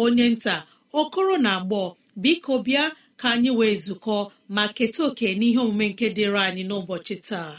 onye nta okoro na agbọ biko bịa ka anyị wee zukọ ma keta oke n'ihe omume nke dịrị anyị n'ụbọchị taa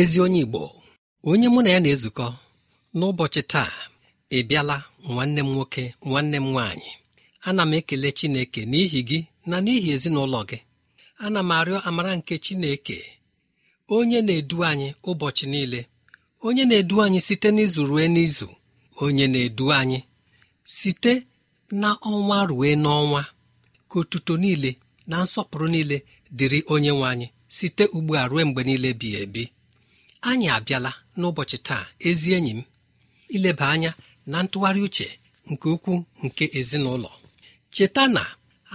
ezi onye igbo onye mụ na ya na-ezukọ n'ụbọchị taa ị bịala nwanne m nwoke nwanne m nwaanyị ana m ekele chineke n'ihi gị na n'ihi ezinụlọ gị ana m arịọ amara nke chineke onye na-edu anyị ụbọchị niile onye na-edu anyị site n'izu rue n'izu onye na-edu anyị site na ọnwa rue n'ọnwa ka otuto niile na nsọpụrụ niile dịrị onye nwe anyị site ugbu a rue mgbe niile bi ebi anyị abịala n'ụbọchị taa ezi enyi m ileba anya na ntụgharị uche nke ukwuu nke ezinụlọ cheta na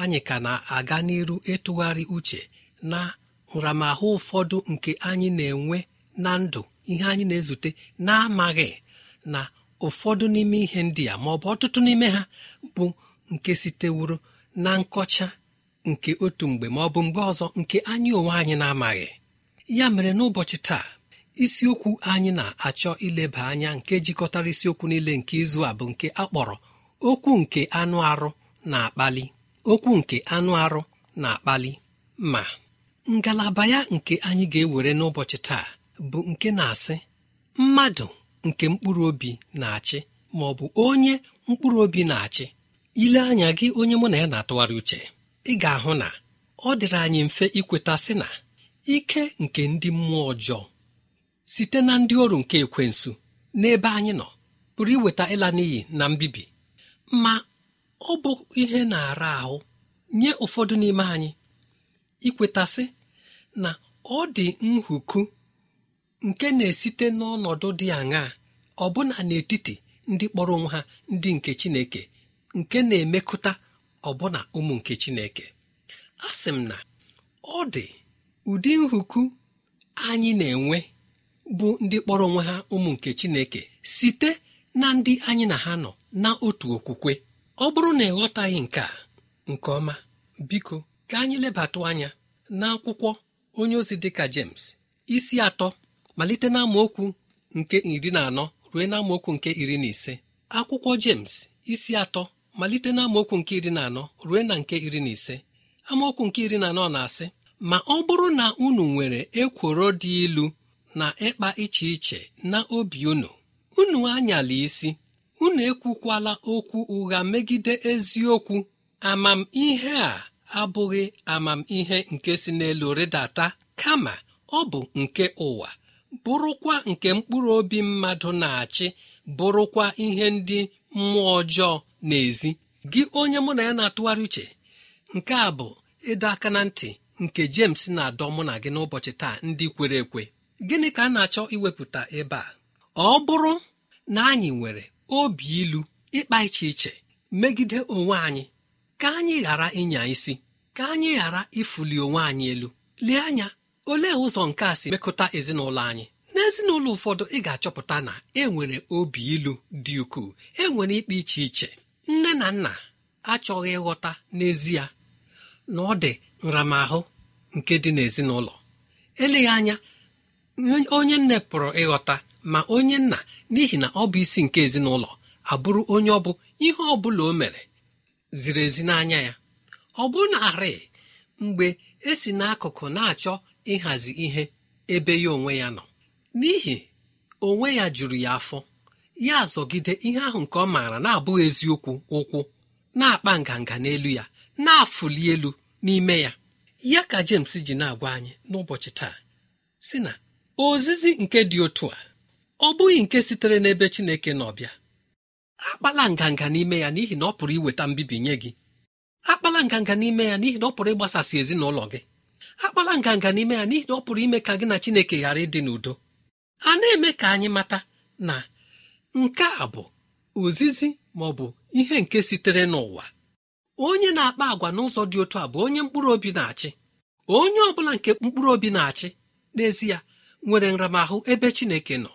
anyị ka na-aga n'iru ịtụgharị uche na nramahụ ụfọdụ nke anyị na-enwe na ndụ ihe anyị na-ezute na-amaghị na ụfọdụ n'ime ihe ndị a ma ọ bụ ọtụtụ n'ime ha bụ nke sitewuru na nkọcha nke otu mgbe ma ọ bụ mgbe ọzọ nke anyị onwe anyị na-amaghị ya mere n'ụbọchị taa isiokwu anyị na-achọ ileba anya nke jikọtara isiokwu niile nke izu a bụ nke a kpọrọ okwu nke anụ arụ na-akpali okwu nke anụ arụ na-akpali ma ngalaba ya nke anyị ga-ewere n'ụbọchị taa bụ nke na-asị mmadụ nke mkpụrụ obi na-achị ma ọ bụ onye mkpụrụ obi na-achị ile anya gị onye mụ na ya na-atụgharị uche ị ga-ahụ na ọ dịrị anyị mfe ikweta sị na ike nke ndị mmụọ ọjọọ site na ndị ọrụ nke ekwensu n'ebe anyị nọ pụrụ iweta ịla n'iyi na mbibi ma ọ bụ ihe na-ara ahụ nye ụfọdụ n'ime anyị ikwetasị na ọ dị nhuku nke na-esite n'ọnọdụ dị aṅaa ọbụna n'etiti ndị kpọrọ onwe ha ndị nke Chineke nke na-emekụta ọbụna ụmụ nke Chineke a sị m na ọ dị ụdị nhuku anyị na-enwe bụ ndị kpọrọ onwe ha ụmụ nke chineke site na ndị anyị na ha nọ na otu okwukwe ọ bụrụ na ịghọtaghị nke a nke ọma biko ka anyị lebatụ anya n'akwụkwọ onye ozi dịka James isi atọ malite n'amaokwu nke iri na anọ ruo n'amaokwu nke iri na ise akwụkwọ James isi atọ malite n'amaokwu nke iri na anọ ruo na nke iri na ise amaokwu nke iri na anọ na-asị ma ọ bụrụ na unu nwere ekworo dị ilu na ịkpa iche iche na obi unu unu anyala isi unu ekwukwala okwu ụgha megide eziokwu amamihe a abụghị amamihe nke si n'elu rịdata kama ọ bụ nke ụwa bụrụkwa nke mkpụrụ obi mmadụ na-achị bụrụkwa ihe ndị mmụọ ọjọọ n'ezi gị onye mụ na ya na-atụgharị uche nke a bụ ịdọ aka na ntị nke James na-adọ mụ na gị n'ụbọchị taa ndị kwere ekwe gịnị ka a na-achọ iwepụta ebe a ọ bụrụ na anyị nwere obi ilu ịkpa iche iche megide onwe anyị ka anyị ghara ịnya isi ka anyị ghara ịfụli onwe anyị elu lee anya olee ụzọ nke a si mekọta ezinụlọ anyị n'ezinụlọ ụfọdụ ị ga-achọpụta na enwere obi ilu dị ukwuu e nwere ikpe iche iche nne na nna achọghị ịghọta n'ezie na ọ dị nramahụ nke dị n'ezinụlọ eleghị anya onye nne pụrụ ịghọta ma onye nna n'ihi na ọ bụ isi nke ezinụlọ abụrụ onye ọ bụ ihe ọ bụla o mere ziri ezi n'anya ya ọ bụ narị mgbe e si n'akụkụ na-achọ ịhazi ihe ebe ya onwe ya nọ n'ihi onwe ya juru ya afọ ya azọgide ihe ahụ nke ọ maara na-abụghị eziokwu ụkwụ na-akpa nganga n'elu ya na-afụli elu n'ime ya ya ka James ji na-agwa anyị n'ụbọchị taa si na ozizi nke dị otu a ọ bụghị nke sitere n'ebe Chineke n'ọbịa akpala nganga n'ime ya n'ihi na ọ pụrụ iweta mbibi nye gị akpala nganga n'ime ya n'ihi na ọ pụrụ ịgbasasị ezinụlọ gị akpala nganga n'ime ya n'ihi na ọ pụrụ ime ka gị na Chineke ghara ịdị n'udo a na-eme ka anyị mata na nke a bụ ozizi ma ọ bụ ihe nke sitere n'ụwa onye na-akpa agwa n'ụzọ dị otu a bụ onye mkpụrụ obi na-achị onye ọ bụla nke mkpụrụ obi na-achị n'ezie nwere nramahụ ebe chineke nọ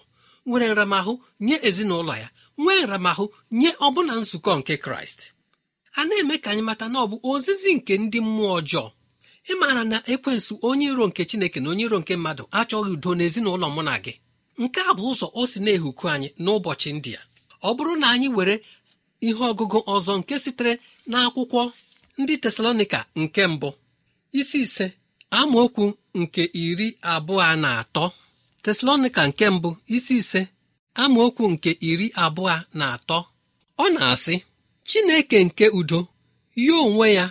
nwere nramahụ nye ezinụlọ ya nwee nramahụ nye ọbụna nzukọ nke kraịst a na-eme ka anyị mata na ọ bụ ozizi nke ndị mmụọ ọjọọ ị maara na ekwensụ onye iro nke chineke na onye iro nke mmadụ achọghị udo n'ezinụlọ mụ na gị nke a bụ ụzọ o si na-ehuku anyị n'ụbọchị ndị a ọ bụrụ na anyị were ihe ọgụgụ ọzọ nke sitere n'akwụkwọ ndị tesalonika nke mbụ isi ise amaokwu nke iri abụọ na atọ teslonika nke mbụ isi ise amaokwu nke iri abụọ na atọ ọ na-asị Chineke nke udo ya onwe ya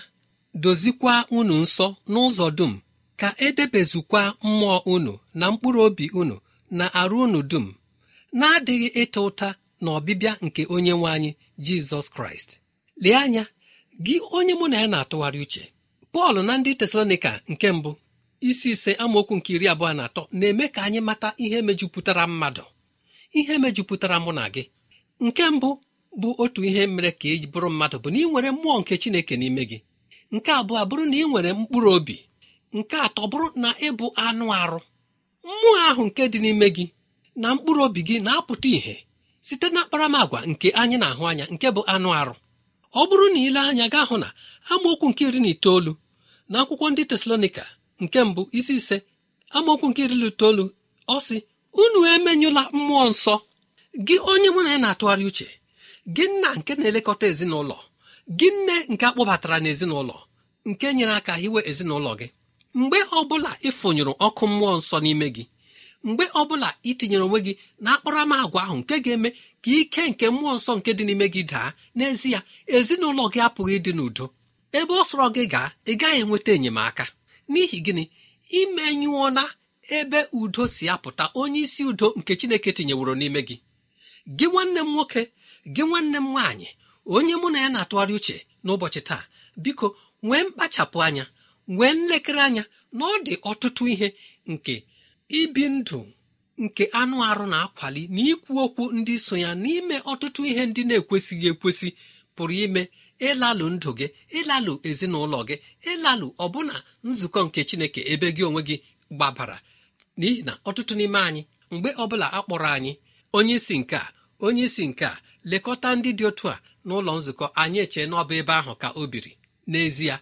dozikwa unu nsọ n'ụzọ dum ka edebezukwa mmụọ unu na mkpụrụ obi unu na arụ unu dum na-adịghị ịta ụta na ọbịbịa nke onye nwe anyị Jizọs Kraịst lee anya gị onye mụ na ya na-atụgharị uche pọl na ndị tesalonika nke mbụ isi ise amaokwu nke iri abụọ na atọ na-eme ka anyị mata ihe mejupụtara mmadụ ihe mejupụtara mụ na gị nke mbụ bụ otu ihe mere ka e bụrụ mmadụ bụ na ị nwere mmụọ nke chineke n'ime gị nke abụọ bụrụ na ị nwere mkpụrụ obi nke atọ bụrụ na ịbụ anụ arụ mmụọ ahụ nke dị n'ime gị na mkpụrụ obi gị na-apụta ìhè site na akparamagwa nke anyị na-ahụ anya nke bụ anụ arụ ọ bụrụ na ile anya gaa hụ na amaokwu nke iri na itoolu n'akwụkwọ ndị tesalonika nke mbụ isi ise amaokwu nke iri itoolu ọ sị unu emenyụla mmụọ nsọ gị onye mụ na ya na-atụgharị uche gị nna nke na-elekọta ezinụlọ gị nne nke akpọbatara n'ezinụlọ nke nyere aka hiwe ezinụlọ gị mgbe ọbụla ịfụnyụrụ ọkụ mmụọ nsọ n'ime gị mgbe ọbụla itinyere onwe gị na akparamagwa ahụ nke ga-eme ka ike nke mmụọ nsọ nke dị n'ime gị daa n'ezie ezinụlọ gị apụghị ịdị n'udo ebe ọ sọrọ gị gaa ị gaghị enweta enyemaka n'ihi gịnị imenyụọ na ebe udo si apụta onye isi udo nke chineke tinyeworo n'ime gị gị nwanne m nwoke gị nwanne m nwaanyị onye mụ na ya na-atụgharị uche n'ụbọchị taa biko nwee mkpachapụ anya nwee nlekere anya na ọ dị ọtụtụ ihe nke ibi ndụ nke anụ arụ na-akwali na ikwu okwu ndị so ya n'ime ọtụtụ ihe ndị na-ekwesịghị ekwesị pụrụ ime ịlalụ ndụ gị ịlalụ ezinụlọ gị ịlalụ ọbụna nzukọ nke chineke ebe gị onwe gị gbabara n'ihi na ọtụtụ n'ime anyị mgbe ọbụla a kpọrọ anyị onye isi nke a onye nke a lekọta ndị dị otu a n'ụlọ nzukọ anyị eche n'ọba ebe ahụ ka o biri n'ezie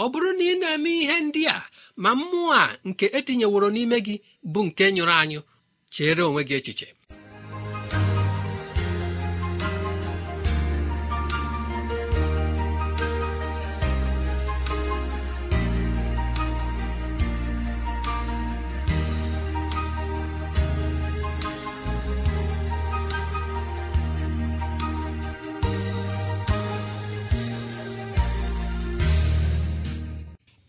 ọ bụrụ na ị na-eme ihe ndị a ma mmụọ a nke etinyeworo n'ime gị bụ nke nyụrụ anyụ chere onwe gị echiche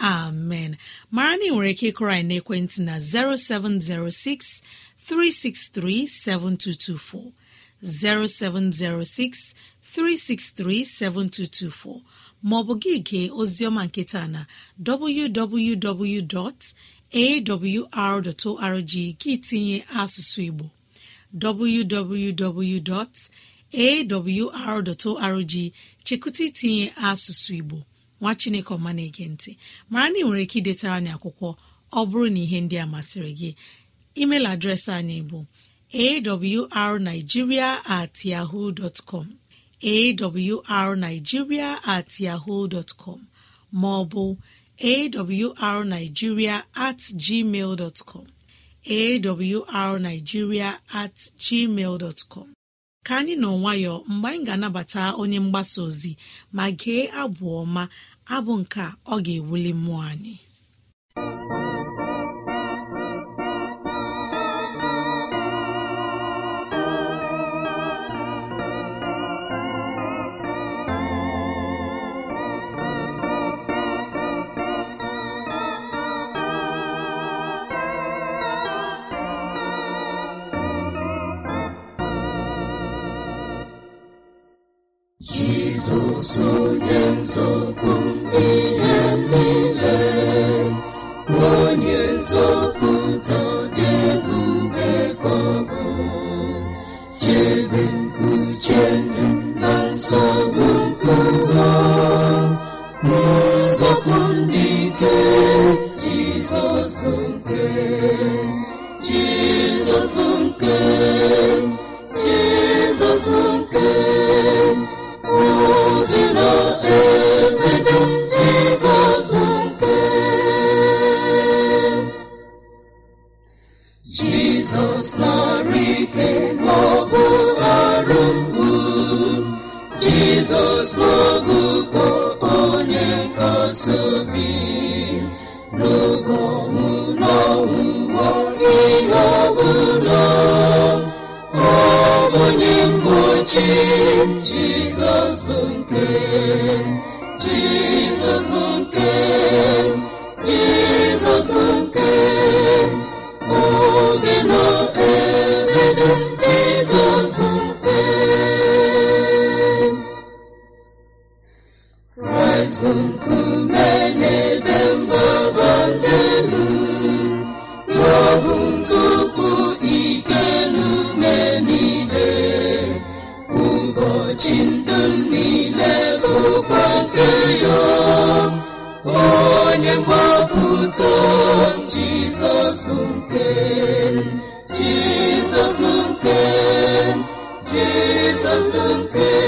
amen mara na nwere ike ịkụrọ anyị n'ekwentị na 0706 363 7224 0706 363 7224 maọbụ gị gee oziọma nketa na www.awr.org gị tinye asụsụ Igbo www.awr.org chekụta itinye asụsụ Igbo nwa chineke ọma na-ege ntị mara na ị nwere ike idetara anyị akwụkwọ ọ bụrụ na ihe ndị a masịrị gị email adreesị anyị bụ awrnigeria at yahoo com awrnigeria at yahoo com ma ọ bụ awrnigeria at gmail dot com awrnigeria at gmail com ka anyị nọ nwayọ mgbe anyị ga-anabata onye mgbasa ozi ma gee abụ ọma abụ nke ọ ga-ewuli mmụọ anyị nzọpụ Jizọs bụ nke Jizọs bụ nke niile bụkwa nke ya onye mgbapụta jizọs bụ nke jizọs bụ nke jizọs bụ nke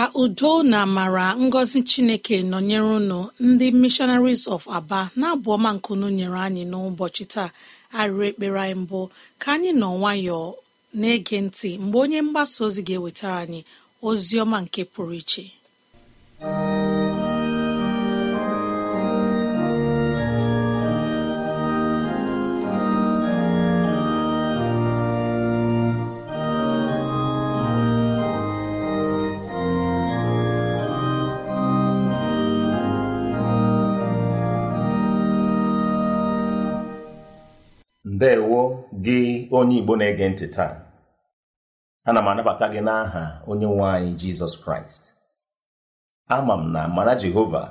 ka udo na amara ngọzi chineke nọnyere ụnụ ndị missionaries of aba na-abụ ọma nkunu nyere anyị n'ụbọchị taa arịrị ekpere anyị mbụ ka anyị nọ nwayọọ na-ege ntị mgbe onye mgbasa ozi ga-ewetara anyị ozi ọma nke pụrụ iche ndeewo gị onye igbo na-ege ntị taa ana m anabata gị n'aha onye nwe anyị jizọs kraịst ama m na mara jehova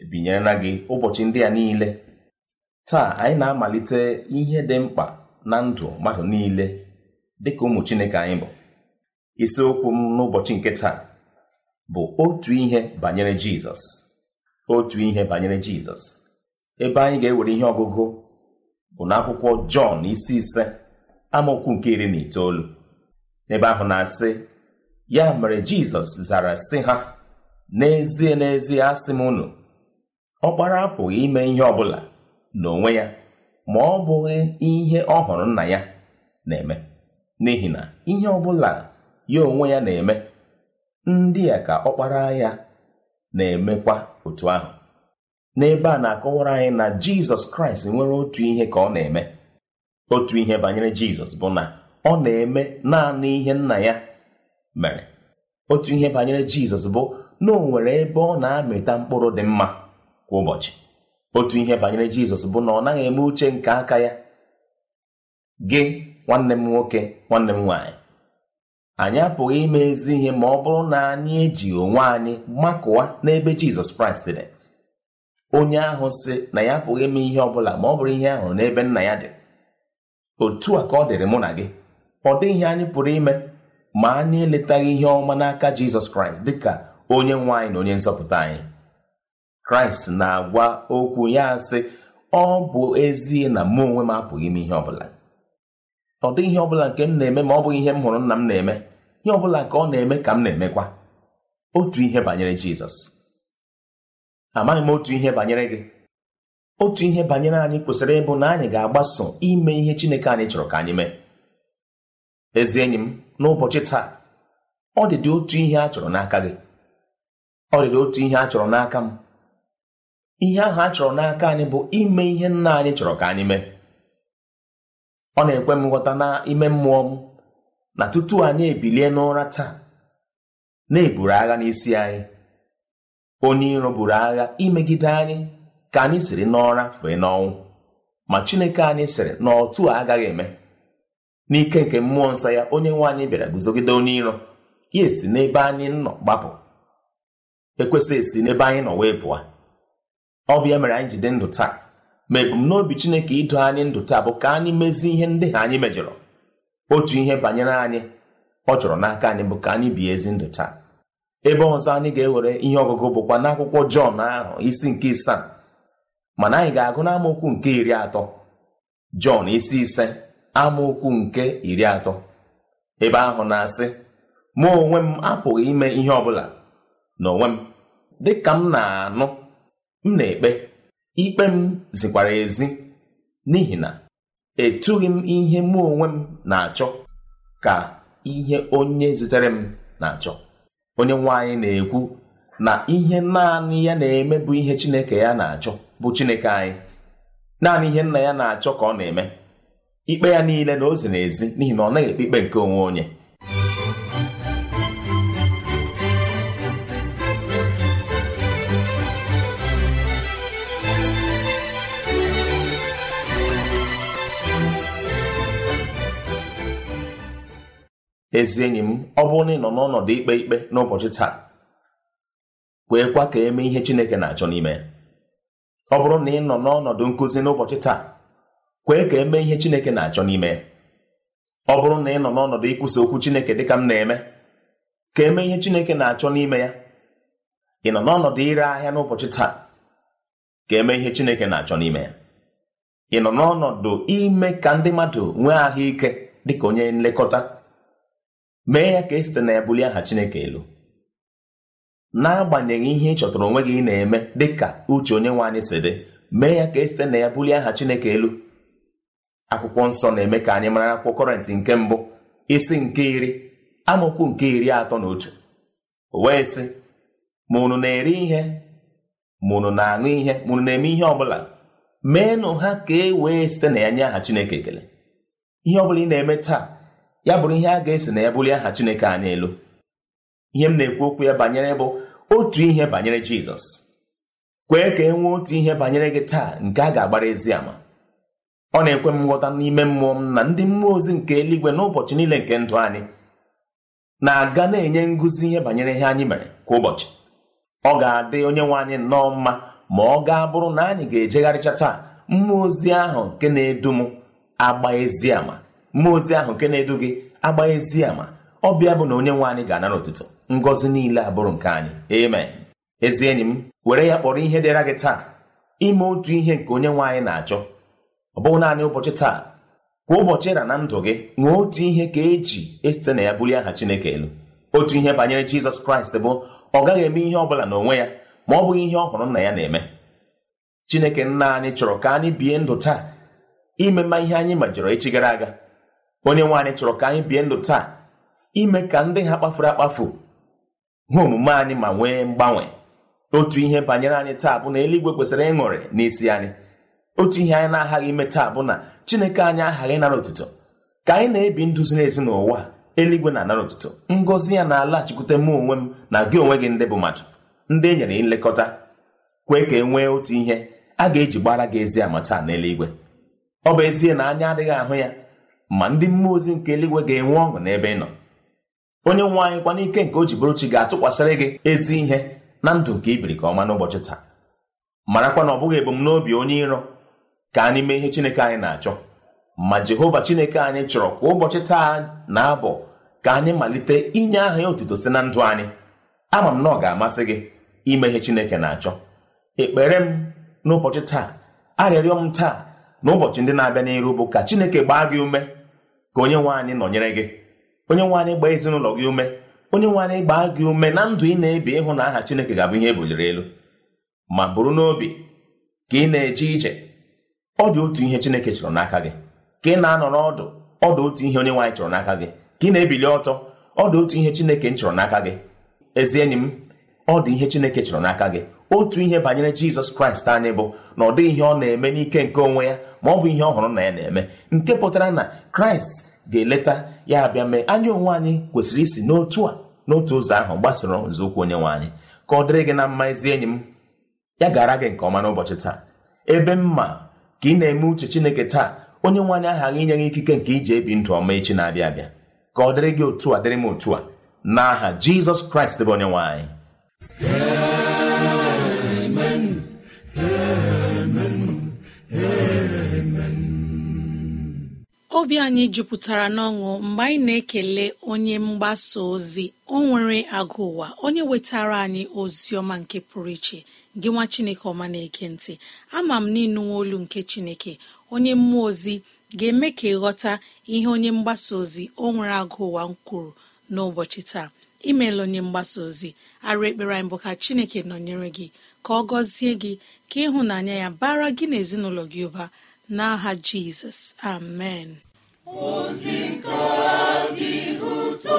ebinyerela gị ụbọchị ndị a niile taa anyị na-amalite ihe dị mkpa na ndụ mmadụ niile dịka ụmụ chineke anyị bụ isiokwu m n'ụbọchị nke taa bụ otu ihe banyere jizọs otu ihe banyere jizọs ebe anyị ga-ewere ihe ọgụgụ bụ n'akwụkwọ jọn isi ise amaokwu nke iri na itoolu Ebe ahụ na-asị ya mere jizọs zara sị ha n'ezie n'ezie asị m unu ọkpara apụghị ime ihe ọbụla n'onwe ya ma ọ bụghị ihe ọ hụrụ nna ya na-eme n'ihi na ihe ọbụla ya onwe ya na-eme ndị a ka ọkpara ya na-emekwa otu ahụ n'ebe a na-akọwara anyị na jizọs kraịst nwere otu ihe ka ọ na-eme otu ihe banyere jizọs bụ na ọ na-eme naanị ihe nna ya mere otu ihe banyere jizọs bụ na o nwere ebe ọ na-amịta mkpụrụ dị mma kwa ụbọchị otu ihe banyere jizọs bụ na ọ naghị eme uche nke aka ya gị nwanne m nwoke nwanne m nwaanyị anyị apụghị ime ezi ihe ma ọ bụrụ na anyị eji onwe anyị makụwa n'ebe jizọs kraịst dị onye ahụ si na ya pụghị ime ihe ọbụla ma ọ bụrụ ihe ahụ n'ebe nna ya dị otu a ka ọ dịrị mụ na gị ọ dịghị anyị pụrụ ime ma anyị eletaghị ihe ọma n'aka Jizọs Kraịst dịka onye nwe anyị na onye nzọpụta anyị Kraịst na-agwa okwu ya sị ọ bụ ezie na mụ onwe m apụghị ime ihe ọbụla ọ dịghị ihe ọbụla nke m na-eme ma ọ bụghị ihe m hụrụ nna m na-eme ihe ọbụla ka ọ na-eme ka m na-emekwa otu ihe banyere Jizọs amaghị m otu ihe banyere gị otu ihe banyere anyị kwesịrị ịbụ na anyị ga-agbaso ime ihe Chineke anyị chọrọ ka anyị mee ezi enyi m n'ụbọchị taa ọ dịdị otu ihe a chọrọ n'aka gị ọ dịdị otu ihe a chọrọ n'aka m ihe ahụ a chọrọ n'aka anyị bụ ime ihe nna anyị chọrọ ka anyị mee ọ na-ekwe m nghọta ime mmụọ m na tutu anyị ebilie n'ụra taa na-eburu agha n'isi anyị onye iro buru agha imegide anyị ka anyị siri n'ọra fee n'ọnwụ ma chineke anyị sịrị na a agaghị eme n'ike nke mmụọ nsọ ya onye nwe anyị bịara guzogide onye iro ya esi n'ebe anyị nọ gbapụ ekwesịghị esi n'ebe anyị nọ wee pụọ ọ bụ ya mere anyị ji dị ndụ taa ma ebumnobi chineke ido anyị ndụ taa bụ ka anyị mezie ihe ndị ha anyị mejọrọ otu ihe banyere anyị ọ chọrọ n'aka anyị bụ ka anyị bie ezi ndụ taa ebe ọzọ anyị ga-ewere ihe ọgụgụ bụkwa n'akwụkwọ jọn ahụ isi nke isaa mana anyị ga-agụ n'amaokwu nke iri atọ jọn isi ise amaokwu nke iri atọ ebe ahụ na-asị mụ onwe m apụghị ime ihe ọbụla n'onwe m dị ka m na-anụ m na-ekpe ikpe m zikwara ezi n'ihi na etughị m ihe mụ onwe m na-achọ ka ihe onye zitere m na-achọ onye nwe anyị na-ekwu na ihe naanị ya na-eme bụ ihe chineke ya na-achọ bụ chineke anyị naanị ihe nna ya na-achọ ka ọ na-eme ikpe ya niile na ozi n'ezi ezi n'ihi na ọ naghị ekpe ikpe nke onwe onye ezi enyi m ọ bụrụ na ị nọ n'ọnọdụ ikpe ikpe n'ụbọchị taa kweekwa ka e mee ihe Chineke na-achọ n'ime ọ bụrụ na ị nọ n'ọnọdụ nkụzi n'ụbọchị taa kwee ka e mee ihe Chineke na-achọ n'ime ọ bụrụ na ị nọ n'ọnọdụ ikwusa okwu Chineke ka m na-eme ka e mee ihe Chineke na-achọ n'ime ya ị nọ n'ọnọdụ ire ahịa n'ụbọchị taa ka mee ihe Chineke na-achọ n'ime ya ị nọ n'ọnọdụ ime ka ndị mmadụ nwee ahụike dịka onye nlekọta mee ya ka e site na ebuli aha chineke elu n'agbanyeghị ihe ị chọtara onwe gị ị na-eme dịka uche onye nwe anyị si dị mee ya ka e site na ya bulie aha chineke elu akwụkwọ nsọ na-eme ka anyị mara akwụkwọ kọrentị nke mbụ isi nke iri amaokwu nke iri atọ na otu wee sị ma unu na-eri ihe ma unu na-aṅụ ihe ma unu na-eme ihe ọbụla meenụ ha ka e wee site na ya nye aha chineke ekele ihe ọbụla ị na-eme taa ya bụrụ ihe a ga-esi na ya bulie aha Chineke anyị elu ihe m na-ekwu okwu ya banyere bụ otu ihe banyere Jizọs kwee ka e nwee otu ihe banyere gị taa nke a ga-agbara ezi ama ọ na-ekwe m nghọta n'ime mmụọ m na ndị mmụọ ozi nke eluigwe n'ụbọchị niile nke ndụ anyị na-aga na-enye ngụzi ihe banyere ihe anyị mere kwa ụbọchị ọ ga-adị onye nwe anyị nnọọ mma ma ọ gaa bụrụ na anyị ga-ejegharịcha taa mmụọ ozi ahụ nke na-edu m agba ezi ama mmụọ ozi ahụ nke na-edu gị agba ezi ama ọbịa bụ na onye nwe anyị ga-anara ụtụtụ ngọzi niile abụrụ nke anyị amen ezi enyi m were ya kpọrọ ihe dịra gị taa ime otu ihe nke onye nwe anyị na-achọ ọ bụghị naanị ụbọchị taa kwa ụbọchị ịra na ndụ gị nwee otu ihe ka eji esite na ya bulie aha chineke elu otu ihe banyere jizọs kraịst bụ ọ gaghị eme ihe ọ bụla n'onwe ya ma ọ bụghị ihe ọ hụrụ nna ya na-eme chineke nna anyị chọrọ ka anyị bie ndụ taa ime mma ihe anyị majọrọ echi gara aga onye anyị chọrọ ka anyị bie ndụ taa ime ka ndị ha kpafuru akpafu hụ omume anyị ma nwee mgbanwe otu ihe banyere anyị taa bụ na eluigwe kwesịrị ịṅụrị n'isi anyị otu ihe anyị na-aghaghị ime taa bụ na chineke anyị aghaghị ịnara otuto ka anyị na-ebi ndụ ziri ezi n'ụwa eluigwe na-anara otuto ngọzi ya na-alaghachikwute mụ onwe m na gị onwe gị ndị bụ mmadụ ndị e nyere nlekọta kwee ka e nwee otu ihe a ga-eji gbara gị ezi ama taa n'eluigwe ọ bụ ezie na anya adịghị ahụ ya ma ndị mmụọ ozi nke eluigwe ga-enwe ọṅụ n'ebe ị nọ onye nwe anyị kwa n'ike nke o ji bụrụ chi ga-atụkwasịrị gị ezi ihe na ndụ nke ibiri ka ọma n'ụbọchị taa marakwa na ọ bụghị ebumnobi onye iro ka anyị mee ihe Chineke anyị na-achọ ma Jehova Chineke anyị chọrọ kwa ụbọchị taa na-abụ ka anyị malite inye aha ya otuto si na ndụ anyị ama m na ọ ga-amasị gị ime ihe Chineke na-achọ ekpere m n'ụbọchị taa arịrịọ m taa na ụbọchị ndị na-abịa n'iru bụ ka Chineke gbaa gị ume ka onye nwe anyị nọnyere gị onye nwe anyị gbaa ezinụlọ gị ume onye nwe anyị gbaa gị ume na ndụ ị na-ebi ịhụ na aha Chineke ga-abụ ihe ebuliri elu ma bụrụ n'obi ka ị na-eje ije ọ dị otu ihe Chineke chọrọ n'aka gị ka ị na-anọ n'ọdụ ọ dị otu ihe onye nwe anyị chọrọ n'aka gị ka ị na-ebili ọtọ ọ dị otu ihe Chineke m chọrọ n'aka gị ezi enyi m ọ dị ihe Chineke chọrọ n'aka gị otu ihe banyere Jizọs Kraịst anyị bụ na ọ dịghị ihe ọ na-eme n'ike nke onwe ya ma ọ bụ ihe ọhụrụ na ya na-eme nke pụtara na kraịst ga-eleta ya abịa mee anyị onwe anyị kwesịrị isi n'otu a n'otu ụzọ ahụ gbasoro nzọụkwụ onye nwe anyị ka ọ dịrị gị na mma ezi enyi m ya gara gị nke ọma n'ụbọchị taa ebe mma ka ị na-eme uche chineke taa onye nwe anyị aghaghị inye gị ikike nke iji ebi ndụ ọma echi na-abịa abịa ka ọ dịrị gị otu a dịrị m otu a n'aha jizọs kraịst bụ onye nwe anyị obi anyị jupụtara n'ọṅụ mgbe anyị na-ekele onye mgbasa ozi o nwere agụ ụwa onye wetara anyị ozi ọma nke pụrụ iche gị nwa chineke ọma na-eke ntị ama m n'ịnụnwe olu nke chineke onye mmụọ ozi ga-eme ka ịghọta ihe onye mgbasa ozi o nwere agụ ụwa kwuru n'ụbọchị taa imeela onye mgbasa ozi arụ ekpere anyị bụ ka chineke nọnyere gị ka ọ gọzie gị ka ịhụnanya ya bara gị na ezinụlọ gị ụba n'aha jizọs amen ozi nke dị ụtọ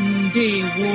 ndewo